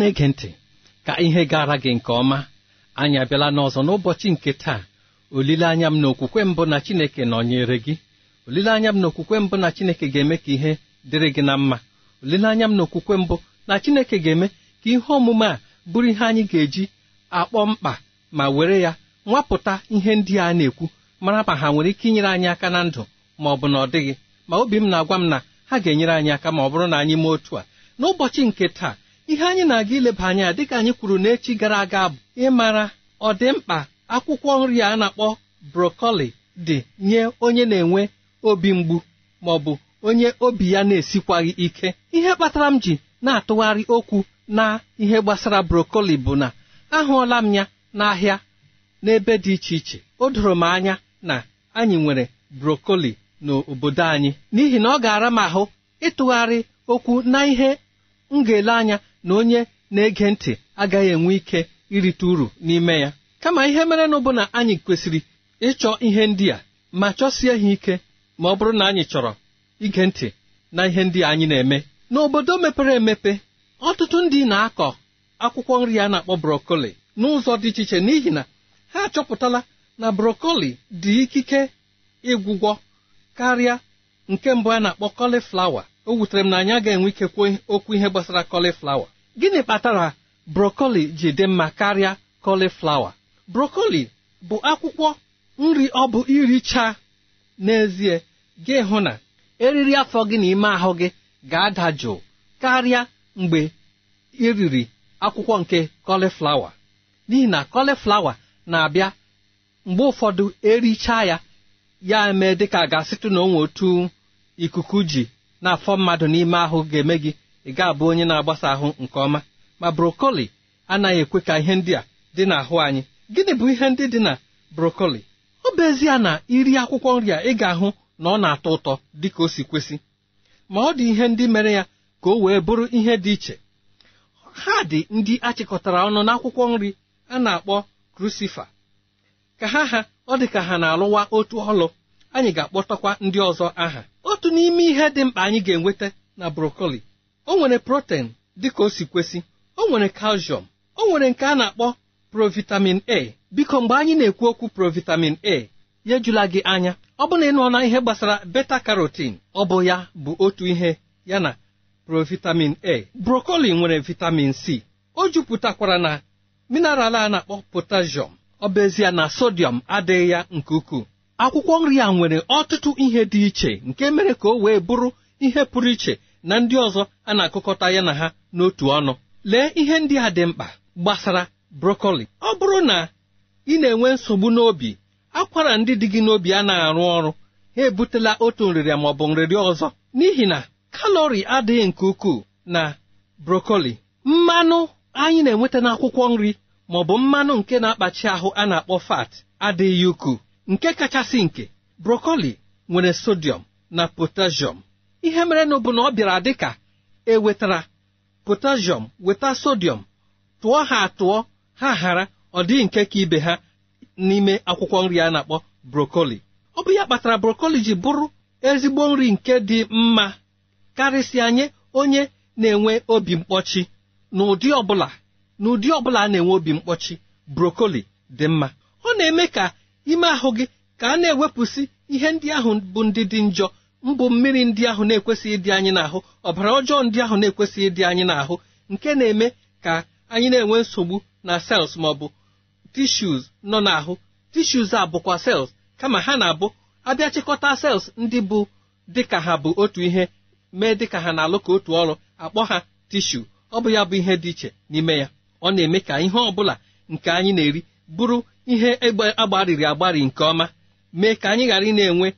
na-ege ntị ka ihe gara gị nke ọma anyị abịala n'ọzọ n'ụbọchị nke taa olileanya m na okwukwe mbụ na Chineke nọnyere gị olileanya m na okwukwe mbụ na Chineke ga-eme ka ihe dịrị gị na mma olileanya m na okwukwe mbụ na Chineke ga-eme ka ihe omume a bụrụ ihe anyị ga-eji akpọ mkpa ma were ya nwapụta ihe ndị a na-ekwu mara ma ha nwere ike inyere anyị aka na ndụ ma ọ bụ na ọ dịghị ma obi m na-agwa m na ha ga-enyere anyị aka ma ọ bụrụ na anyị mee otu a n'ụbọchị nke taa ihe anyị na-aga ileba anya dịka anyị kwuru n'echi gara aga bụ ịmara ọ dị mkpa akwụkwọ nri a na-akpọ brokoli dị nye onye na-enwe obi mgbu ma ọ bụ onye obi ya na-esikwaghị ike ihe kpatara m ji na-atụgharị okwu na ihe gbasara brokoli bụ na ahụọla m ya n'ahịa n'ebe dị iche iche o doro m anya na anyị nwere brokoli n'obodo anyị n'ihi na ọ ga-ara m ahụ ịtụgharị okwu na ihe m ga-ele anya na onye na-ege ntị agaghị enwe ike irite uru n'ime ya kama ihe mere na ụbụna na anyị kwesịrị ịchọ ihe ndị a ma chọsie ha ike ma ọ bụrụ na anyị chọrọ ige ntị na ihe ndị anyị na-eme n'obodo mepere emepe ọtụtụ ndị na-akọ akwụkwọ nri a na-akpọ brokoli n'ụzọ dị iche iche n'ihi na ha achọpụtala na brokoli dị ikike ịgwụgwọ karịa nke mbụ a na-akpọ o wutere m na anyị ga-enwe ikekwe okwu ihe gbasara kọliflawa gịnị kpatara brokoli ji dị mma karịa kọliflawa brokoli bụ akwụkwọ nri ọ bụ iricha n'ezie gị hụ na eriri afọ gị na ime ahụ gị ga-ada jụụ karịa mgbe iriri akwụkwọ nke kọliflawa n'ihi na kọliflawa na-abịa mgbe ụfọdụ ericha ya ya mee dịka ga-asịtụ na otu ikuku ji na-afọ mmadụ n'ime ahụ ga-eme gị ị ga-abụ onye na-agbasa ahụ nke ọma ma brokoli anaghị ekwe ka ihe ndị a dị n'ahụ anyị gịnị bụ ihe ndị dị na brokoli ọ bụ ezie na iri akwụkwọ nri a ị ga-ahụ na ọ na-atọ ụtọ dị ka o si kwesị ma ọ dị ihe ndị mere ya ka o wee bụrụ ihe dị iche ha dị ndị achịkọtara ọnụ n'akwụkwọ nri a na-akpọ krusifa ka ha ha ọ dị ka ha na-alụwa otu ọlụ anyị ga-akpọtakwa ndị ọzọ aha otu n'ime ihe dị mkpa anyị ga-enweta na brokoli o nwere protein dịka o si kwesị o nwere calcium o nwere nke a na-akpọ provitamin A biko mgbe anyị na-ekwu okwu provitamin A ya ejula gị anya ọ bụ na na ihe gbasara beta karotin ọ bụ ya bụ otu ihe ya na provitamin A brokoli nwere vitamin C o jupụtakwara na mineral a na-akpọ potasium ọ bụ na sodium adịghị ya nke ukwuu akwụkwọ nri a nwere ọtụtụ ihe dị iche nke mere ka o wee bụrụ ihe pụrụ iche na ndị ọzọ a na-akụkọta ya na ha n'otu ọnụ lee ihe ndị a dị mkpa gbasara brokoli ọ bụrụ na ị na-enwe nsogbu n'obi akwara ndị dị gị n'obi a na-arụ ọrụ ha ebutela otu nrịrịa ma ọ bụ nrịrịa ọzọ n'ihi na kalori adịghị nke ukwuu na brokoli mmanụ anyị na-enweta n'akwụkwọ nri maọbụ bụ mmanụ nke na-akpachi ahụ a na-akpọ fat adịghị ukwuu nke kachasị nke brokoli nwere sodium na potassium ihe merenụ bụ na ọ bịara dị ka e wetara potassium weta sodium tụọ ha atụọ ha ghara ọ dịghị nke ka ibe ha n'ime akwụkwọ nri a na-akpọ brokoli ọ bụ ya kpatara brokoli ji bụrụ ezigbo nri nke dị mma karịsịa nye onye na-enwe obi mkpọchi n'ụdị ọbụla n'ụdị ọbụla a na-enwe obi mkpọchi brokoli dị mma ọ na-eme ka ime ahụ gị ka a na-ewepụsị ihe ndị ahụ bụ ndị dị njọ mbụ mmiri ndị ahụ na-ekwesịghị ịdị anyị n'ahụ ọbara ọjọọ ndị ahụ na-ekwesịghị ịdị anyị n'ahụ nke na-eme ka anyị na-enwe nsogbu na sels maọbụ tishus nọ n'ahụ tishus a bụkwa sels kama ha na-abụ abịa chịkọta sels ndị bụ dịka ha bụ otu ihe mee dịka ha na-alụ ka otu ọrụ akpọ ha tishu ọ bụ ya bụ ihe dị iche n'ime ya ọ na-eme ka ihe ọ bụla nke anyị na-eri bụrụ ihe egbe agbarịrị agbarị nke ọma mee ka anyị ghara ị na-enwe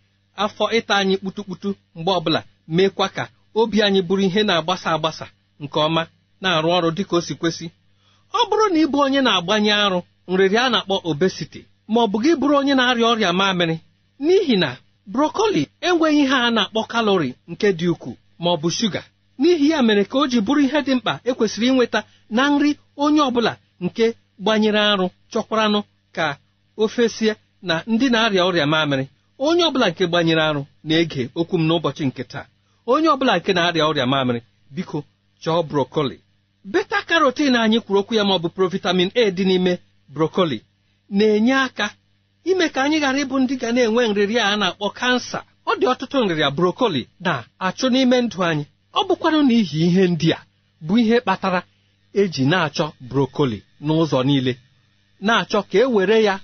afọ ịta anyị kputukputu mgbe ọbụla meekwa ka obi anyị bụrụ ihe na-agbasa agbasa nke ọma na-arụ ọrụ dịka o si kwesị ọ bụrụ na ịbụ onye na-agbanye arụ nrịrị a na-akpọ obesiti ma ọ bụ gị bụrụ onye na-arịa ọrịa mamịrị n'ihi na brokoli enweghị ihe a na-akpọ kalori nke dị ukwuu ma ọ bụ shuga n'ihi ya mere ka o ji bụrụ ihe dị mkpa ekwesịrị inweta na nri onye ọ bụla nke gbanyere arụ chọkwaranụ ka o na ndị na-arịa ọrịa mamịrị onye ọbụla nke gbanyere arụ na-ege okwu m n'ụbọchị nke taa onye ọbụla nke na-arịa ọrịa mamịrị biko chọọ brokoli beta karotin anyị kwuru okwu ya ma ọ bụ provitamin A dị n'ime brokoli na-enye aka ime ka anyị ghara ịbụ ndị ga na-enwe nrịrịa a na-akpọ kansa ọ dị ọtụtụ nrịrịa brokoli na-achụ n'ime ndụ anyị ọ bụkwarụ n'ihi ihe ndị a bụ ihe kpatara eji na-achọ brokoli n'ụzọ niile na-achọ ka e were ya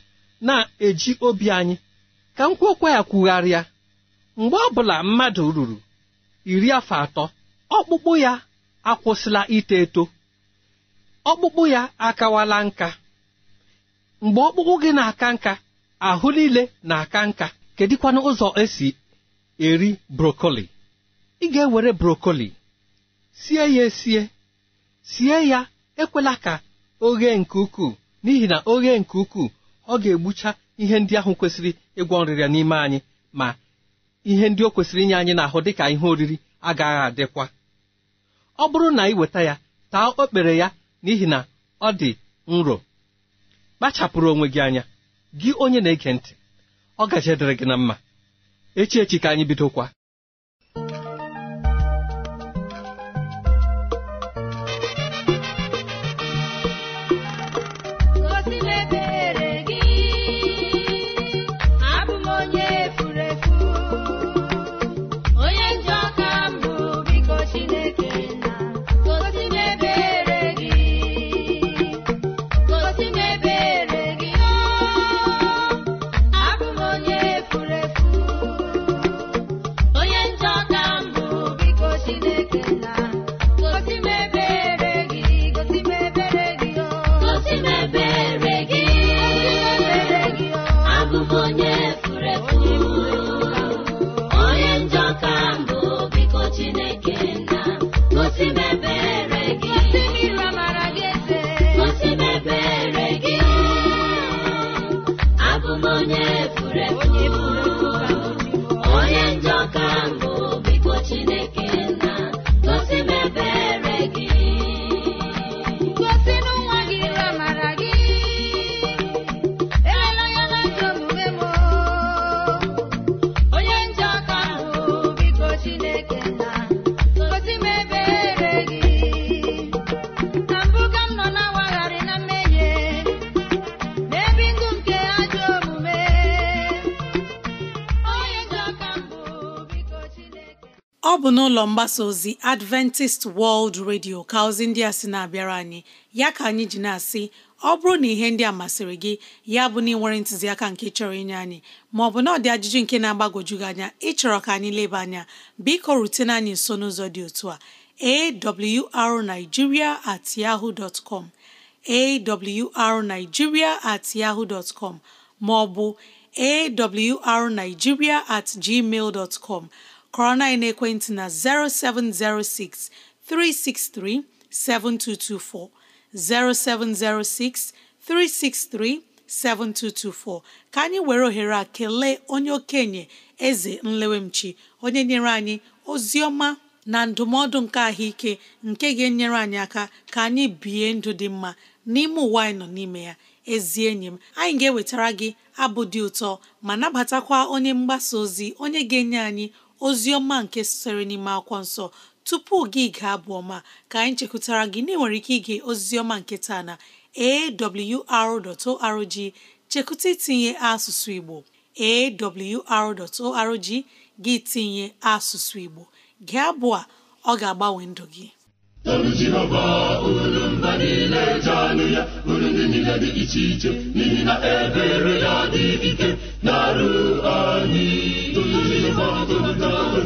na-eji obi anyị ka m kwekwa ya kwugharịa mgbe ọ bụla mmadụ ruru iri afọ atọ ọkpụkpụ ya akwụsịla ito eto ọkpụkpụ ya akawala nka mgbe ọkpụkpụ gị na-aka nka ahụ niile na-aka nka kedịkwanụ ụzọ esi eri brokoli ị ga-ewere brokoli sie ya esie sie ya ekwela ka ghee nke ukwuu n'ihi na oghe nke ukwuu ọ ga-egbucha ihe ndị ahụ kwesịrị ịgwọ nrịrịa n'ime anyị ma ihe ndị o kwesịrị inye anyị n'ahụ dịka ihe oriri agaghị adịkwa ọ bụrụ na ị weta ya taa okpere ya n'ihi na ọ dị nro kpachapụrụ onwe gị anya gị onye na-ege ntị ọ gaje dịrị gị na echi echi ka anyị bidokwa n'ụlọ mgbasa ozi Adventist World Radio ka ozi ndị a sị na-abịara anyị ya ka anyị ji na-asị ọ bụrụ na ihe ndị a masịrị gị ya bụ na ịnwere ntụziaka nke chọrọ inye anyị maọbụ na ọ dị ajụjụ nke na-agbagwoju gị anya ịchọrọ ka anyị leba anya biko rutena anyị nso n'ụzọ dị otu a awrnigeria at yahoo dot com awrnigeria at yahoo dot com maọbụ awrnigeria at gmail dot com kọrọ na ekwentị na 0706 363 7224 0706 363 7224 ka anyị were ohere a kelee onye okenye eze nlewemchi onye nyere anyị ozi ọma na ndụmọdụ nke ahụike nke ga-enyere anyị aka ka anyị bie ndụ dị mma n'ime ụwa anyị nọ n'ime ya ezi enyi m anyị ga-ewetara gị abụ dị ụtọ ma nabatakwa onye mgbasa ozi onye ga-enye anyị ozi ọma nke sitere n'ime akwụkwọ nsọ tupu gị gaa abụ ọma ka anyị chekwutara gị na ike ige ozi nke taa na awr.org chekwuta itinye asụsụ Igbo awr.org gị tinye asụsụ Igbo gị abụ a ọ ga-agbanwe ndụ gị iche n'ihi na ebere ya dị ike na-arụ anyị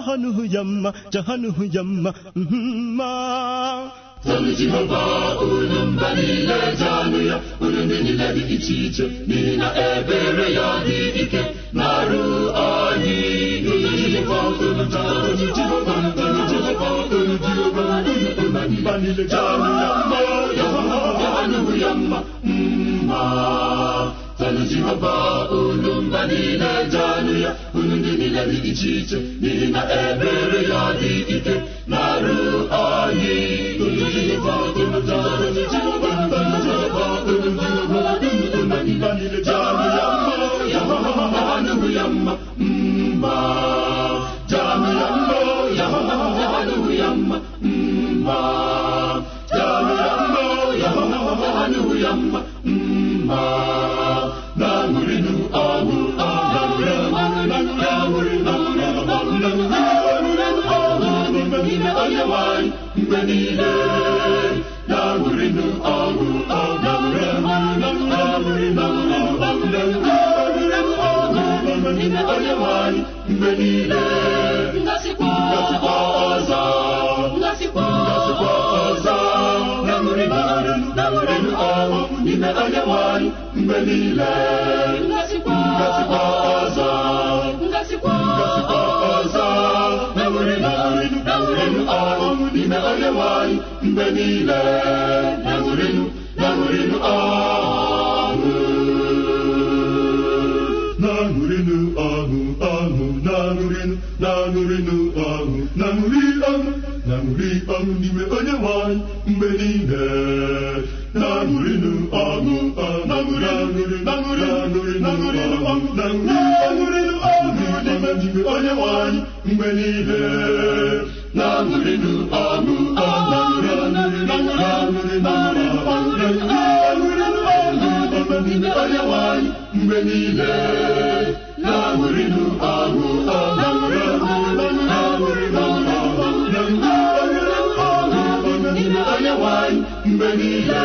చహనుయమ్మ చహనుయమ్మ Tọmiji họba unu mba niile ya unu ndị niile dị iche iche n'ihi na ebere ya dị ike na-arụ anyị ijijikwa unu jehova unu jehova unu jehova unu mba niile ya mma ya mma ya mma mma ọlụzi họba olu mba niile janụ ya unu ndị niile dị iche iche n'ihi na ebere ya dị ike na-arụ anyị janụ ya mma ya mma ya mma ya mma niile na-awụrịnụ ọrụ n'ime onye nwanyị mgbe niile ngasikwa ọzọ ngasikwa ọzọ na-awụrịnụ ọrụ na n'ime onye nwanyị mgbe niile ngasikwa ọzọ n'ime onyenwe anyị mgbe niile na-aṅụrịnụ na-aṅụrịnụ ọṅụ na-aṅụrịnụ ọṅụ ọṅụ na-aṅụrịnụ na-aṅụrịnụ ọṅụ na ọṅụ na ọṅụ n'ime onyenwe anyị mgbe niile na ọṅụ na na ọṅụ na mgbe niile na-aṅụrịnụ ọṅụ ndị nwanyị mgbe niile na-aṅụrịnụ niile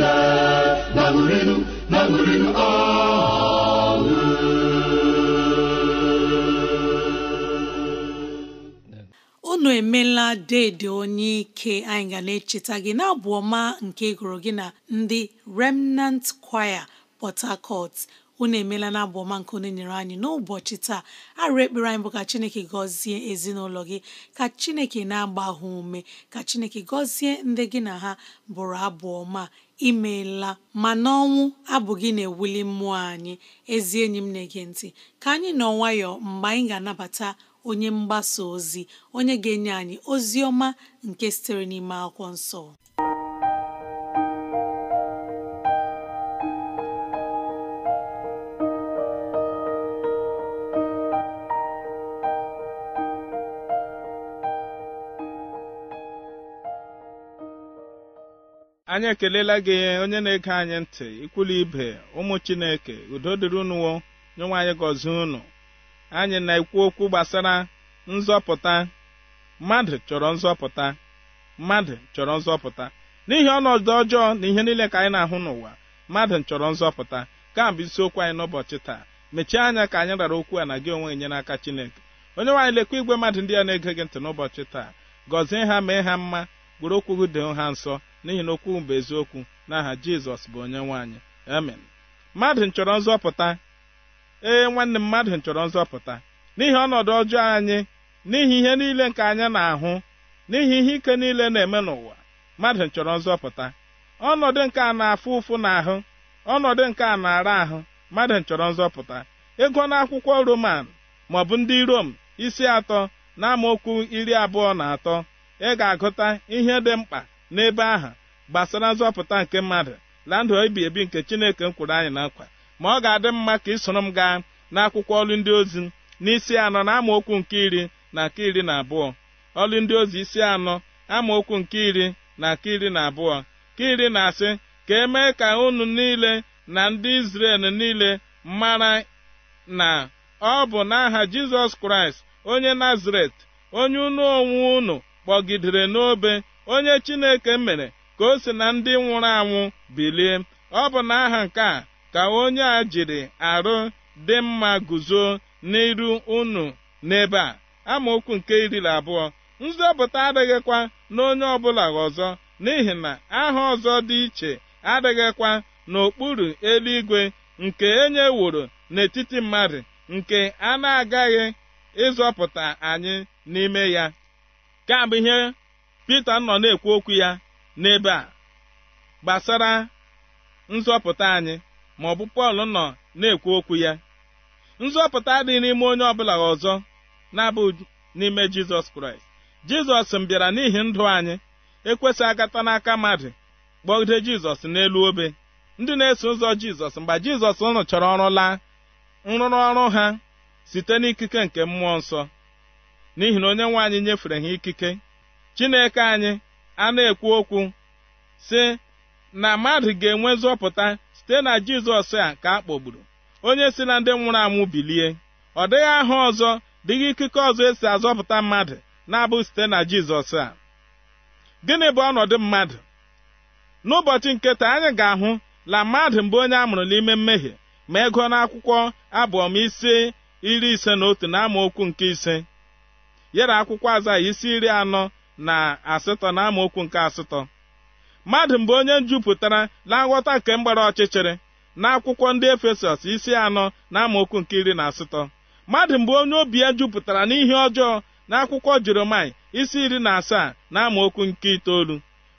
emela dị unu emela deede onye ike anyị ga na-echeta gị na-abụ ọma nke gụrụ gị na ndị remnant choir port harcourt unu emela na abụ ọma nke onye nyere anyị n'ụbọchị taa arụ ekpere anyị bụ ka chineke gọzie ezinụlọ gị ka chineke na-agba ume ka chineke gọzie ndị gị na ha bụrụ abụ ọma imeela ma n'ọnwụ abụghị na-ewuli mmụọ anyị ezi enyi m na-ege ntị ka anyị nọ nwayọọ mgbe anyị ga-anabata onye mgbasa ozi onye ga-enye anyị ozi ọma nke sitere n'ime akwụkwọ nsọ anyị ekelela gị onye na-ege anyị ntị ikwulu ibe ụmụ chineke udo dịrị unuwo nyenwe anyị gọzie unu anyị na-ekwu okwu gbasara nzọpụta mmadụ chọrọ nzọpụta mmadụ chọrọ nzọpụta n'ihi ọnọdụ ọjọọ na ihe niile ka anyị na-ahụ n'ụwa mmadụ chọrọ nzọpụta ka bụ isiokwu anyị n'ụbọchị taa mechie anya ka anyị rara okwu a na gị onwe gị naka aka chineke onye nwaanyị lekwa igwe mmadụ ndị a na-ege gị ntị n'ụbọchị taa gọzie ha mee ha mma gwere okwu gị ha nsọ n'ihi na okwu bụ eziokwu n'aha jizọs bụ onye nwaanyị amen mmadụ nchọrọ nzọpụta ee nwanne m mmadụ nchọrọ nzọpụta n'ihi ọnọdụ ọjọọ anyị n'ihi ihe niile nke anyị na-ahụ n'ihi ihe ike niile na-eme n'ụwa mmadụ nchọrọ nzọpụta ọnọdụ nke a na-afụ ụfụ n'ahụ ọnọdụ nke a na-ara ahụ mmadụ nchọrọ nzọpụta ego akwụkwọ roman maọbụ ndị rom isi atọ na amaokwu iri abụọ na atọ ị ga-agụta ihe dị mkpa n'ebe aha gbasara nzọpụta nke mmadụ na ndụ ebi ebi nke chineke m kwuru anyị na nkwa ma ọ ga-adị mma ka ị m gaa n'akwụkwọ ọlụ ndị ozi n'isi anọ na amaokwu nke iri na nke iri na abụọ ọlụ ndị ozi isi anọ amaokwu nke iri na nke iri na abụọ ka iri e na-asị ka emee ka unu niile na ndị Izrel niile mara na ọ bụ n'aha Jizọs Kraịst onye Nazaret onye unu onwe unu kpọgidere n'obe onye chineke mere ka o si na ndị nwụrụ anwụ bilie ọ bụ na aha nke a ka onye a jiri arụ dị mma guzo n'iru unu n'ebe a amaokwu nke iri abụọ nzọpụta adịghịkwa n'onye ọbụla ọzọ n'ihi na aha ọzọ dị iche adịghịkwa n'okpuru eluigwe nke enye woro n'etiti mmadụ nke a na-agaghị ịzọpụta anyị n'ime ya ka ihe Pita nọ na-ekwu okwu ya n'ebe a gbasara nzọpụta anyị ma ọ bụ Pọl nọ na-ekwu okwu ya nzọpụta adịghị n'ime onye ọbụla ọzọ na abụ n'ime Jizọs Kraịst Jizọs mbịara bịara n'ihi ndụ anyị ekwesị agata n'aka mmadụ kpọgide Jizọs n'elu obe ndị na-eso ụzọ Jizọs mgbe Jizọs rụchara ọrụ laa nrụrụ ọrụ ha site n'ikike nke mmụọ nsọ n'ihi na onye nwe anyị nyefere ha ikike chineke anyị a na-ekwu okwu sị na mmadụ ga-enwe nzọpụta site na jizọs a ka a kpọgburu onye si na ndị nwụrụ anwụ bilie ọ dịghị aha ọzọ dịghị ikike ọzọ esi azọpụta mmadụ na-abụ site na jizọs a gịnị bụ ọnọdụ mmadụ n'ụbọchị nke taa anyị ga-ahụ na mmadụ mbụ onye a mụrụ n'ime mmehie ma ego n'akwụkwọ abụọm isi iri ise na otu na okwu nke ise yara akwụkwọ aza isi iri anọ na asatọ na amaokwu nke asatọ mmadụ mgbe onye njupụtara na nghọta nke mgbara ọchịchịrị na akwụkwọ ndị efesọs isi anọ na amaokwu nke iri na asatọ mmadụ mgbe onye obi ya jupụtara n'ihe ọjọọ na akwụkwọ jeremai isi iri na asaa na amaokwu nke itoolu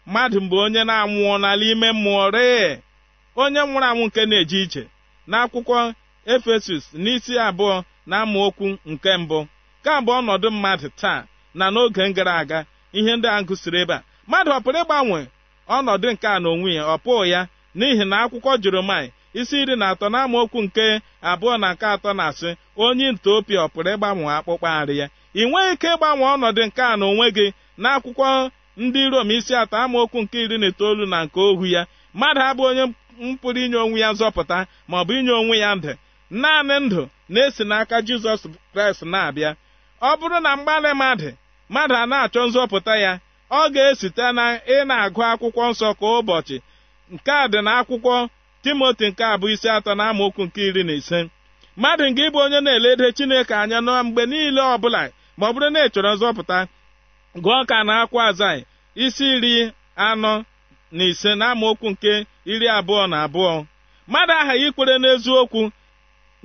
mmadụ mgbe onye na-anwụọ n'ala ime mmụọ ree onye nwụrụ anwụ nke na-eje ije na akwụkwọ efesus n'isi abụọ na amaokwu nke mbụ ka bụ ọnọdụ mmadụ taa na n'oge gara aga ihe ndị a gụsiri ebe a mmadụ ọ pụrụ ịgbanwe ọnọdụ nke a n'onwe ya ọ pụọ ya n'ihi na akwụkwọ Jeremaịa isi iri na atọ n'amaokwu nke abụọ na nke atọ na-asị onye nta ọ pụrụ ịgbanwe akpụkpọ arị ya ị nweghị ike ịgbanwe ọnọdụ nke a n'onwe gị akwụkwọ ndị Rom isi atọ amaokwu nke iri na itoolu na nke ohu ya mmadụ abụ onye mpụrụ inye onwe ya nzọpụta ma ọ bụ inye onwe ya ndụ naanị ndụ na-esi n'aka Jizọs Kraịst na-abịa ọ bụrụ na mgbalị mmadụ mmadụ a na-achọ nzọpụta ya ọ ga-esite na ị na-agụ akwụkwọ nsọ ka ụbọchị nke a dị na akwụkwọ timoti nke abụ isi atọ na amaokwu nke iri na ise mmadụ nga ịbụ onye na-elede chineke anya na mgbe niile ọbụla ma ọ bụrụ na ị chọrọ nzọpụta gụọ ka na akwa azai isi iri anọ na ise na amaokwu nke iri abụọ na abụọ mmadụ aghaghị ikwere n'eziokwu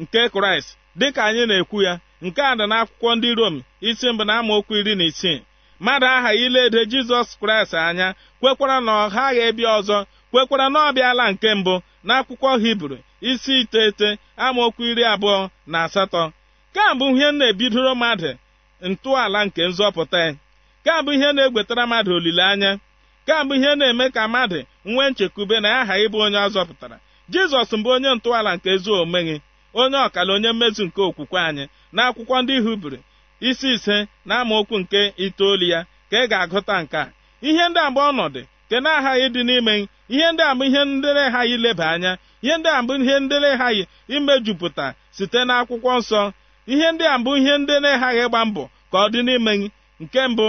nke kraịst dịka anyị na-ekwu ya nke a dị n'akwụkwọ ndị rom isi mbụ na amaokwu iri na isii mmadụ aha iledo jizọs kraịst anya kwekwara na ọ ghaghị ebịa ọzọ kwekwara na ọ bịala nke mbụ n'akwụkwọ hibru isi iteghete amaokwu iri abụọ na asatọ ka ihe na-ebidoro mmadụ ntọala nke nzọpụta ya ihe na-egwetara mmadụ olileanya ka ihe na-eme ka mmadụ nwee nchekwube na aha ịbụ onye ọ zọpụtara jizọs mbụ onye ntọala nke ezi omume onye ọkala onye mmezu nke okwukwe anyị n'akwụkwọ ndị hibru isi ise na amaokwu nke itoolu ya ka ị ga-agụta nke a ihe ndị agba ọnọdụ nke na-aghaghị ịdị n'ime ihe ndị a ihe ndị na leba ileba anya ihe ndị a bụ ihe ndị na imejupụta site n'akwụkwọ nsọ ihe ndị a bụ ihe ndị na-aghaghị ịgba mbọ ka ọ dị n'ime gị nke mbụ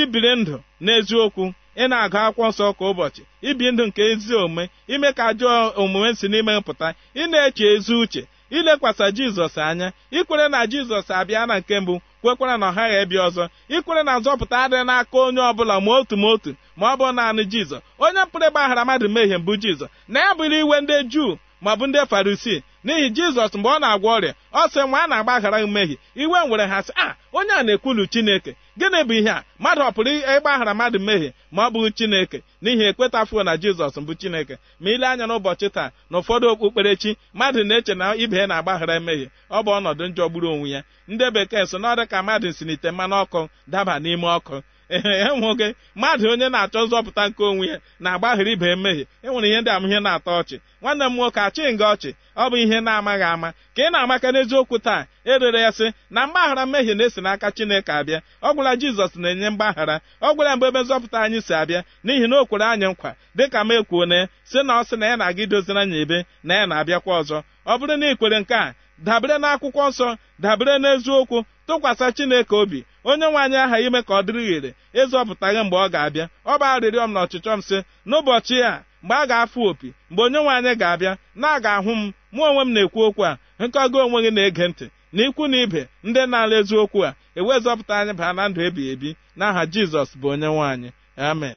ibiri ndụ n'eziokwu ị na-agụ akwụkwọ nsọ kwa ụbọchị ibi ndụ nke ezi omume ime ka ajọ omume si n'ime pụta ị na-eche ezi uche ilekwasa jizọs anya ikwere na jizọs abịa na nke mbụ kwekwara na ọha ghaghị ebịa ọzọ ikwere na nzọpụta adịghị n'aka onye ọbụla ma otu ma otu ma ọ bụ naanị Jizọs onye pụrụ ịgbaghara mmadụ mehie mbụ Jizọs na ya bụrụ iwe ndị juu ma ọ bụ ndị farisi n'ihi jizọs mgbe ọ na-agwa ọrịa ọ sị nwa a na-agbaghara mmehie iwe nwere ha sị a ah, onye a na-ekwulu chineke gịnị bụ ihe a mmadụ ọ pụrụ ịgbaghara mmadụ mmehie ma ọ bụghị chineke n'ihi ekwetafuo na jizọs mbụ chineke ma ile anya n'ụbọchị taa na ụfọdụ okpukperechi mmadụ na-eche na ibe ya na-agbaghara emehie ọ bụ ọnọdụ njọ gburu onwe ya ndị bekee so na ka mmadụ si n'ite mmanụ ọkụ daba n'ime ọkụ ya nwoke mmadụ onye na-achọ nzọpụta nke onwe ya na agbaghara ibe mmehie enwere ihe ndị amụihe na-atọ ọchị nwanne m nwoke achịghị gị ọchị ọ bụ ihe na-amaghị ama ka ị na-amaka n'eziokwu taa erere ya sị na mgbaghara mmehie na-esi n'aka Chineke abịa ọ gwụla Jizọs na-enye mgbaghara ọ gwụla mgbe ebe nzọpụta anyị si abịa n'ihi na o kwere anyị nkwa dịka m ekwuo na sị na ọ sị na ya na-aga idozira anya ebe na ya na-abịakwa ọzọ ọ bụrụ na ikwere nke a dabere n'akwụkwọ nsọ dabere n'eziokwu tụkwasị Chineke obi onye nwaanyị aha ime ka ọ dịrị ghere ịzọpụtaghị mgbe ọ ga-abịa ọ bụ arịrịọ m na ọchịchọ m sị n'ụbọchị a mgbe a ga-afụ opi mgbe onye nwaanyị ga-abịa na a ga-ahụ m mụ onwe m na-ekwu okwu a nke onwe gị na-ege ntị na ikwu na ibe ndị na-ala eziokwu a ewezọpụta anyị baa na ndụ ebighị ebi n'aha Jizọs bụ onye nwaanyị amen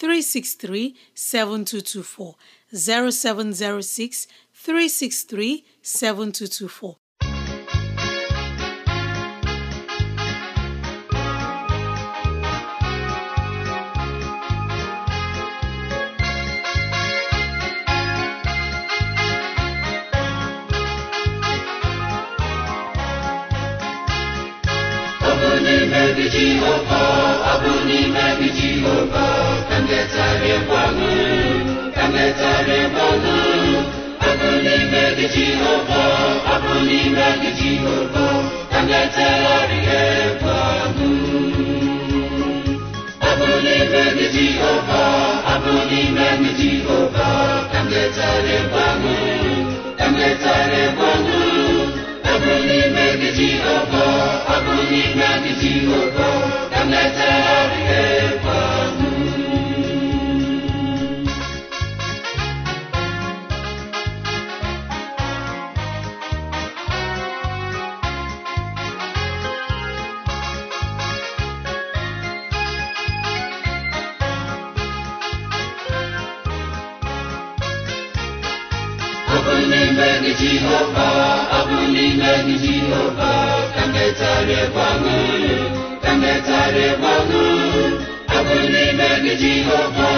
363 7224 0706 363 7224 n'ime gị Jehova ọ bụ n'ime gị Jehova ka nletarịgwanụ ka nletarịgwanụ ọ bụ n'ime gị Jehova ọ bụ n'ime gị Jehova ka nletarịgwanụ ọbụrụ n'ime gị Jehova ọbụrụ n'ime gị Jehova ka m na bụ n'ime gị jehova ọ bụ n'ime gị jehova ka metarịgbanụ ka metarịgbanụ ọ bụ n'ime gị jehova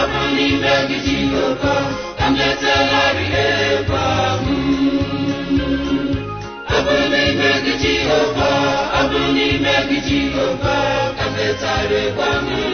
ọ bụ n'ime gị jehova ka metegharị egwu ahụ n'ime gị jehova ọ bụ n'ime gị jehova ka metarịgbanụ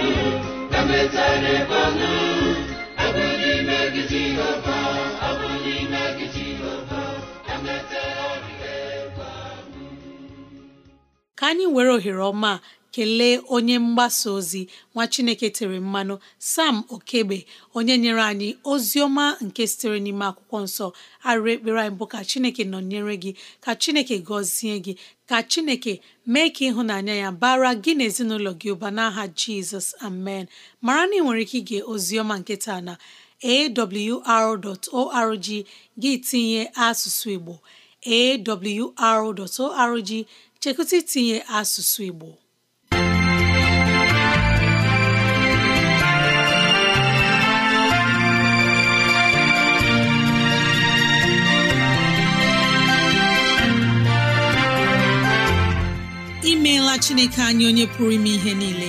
ka anyị were ohere ọma kelee onye mgbasa ozi nwa chineke tere mmanụ sam okegbe onye nyere anyị ozi ọma nke sitere n'ime akwụkwọ nsọ arụ ekpere anyị bụ ka chineke nọnyere gị ka chineke gọzie gị ka chineke mee ka ịhụnanya ya bara gị na ezinụlọ gị ụba n'aha jizọs amen mara na ị nwere ike ige oziọma na awr.org gị tinye asụsụ Igbo awr.org chekụta itinye asụsụ Igbo imeela Chineke anyị onye pụrụ ime ihe niile